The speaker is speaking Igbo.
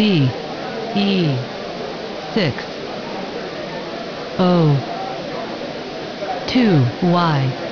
z e 6 o 2 y